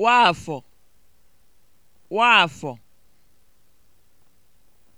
Nwaafọ Nwaafọ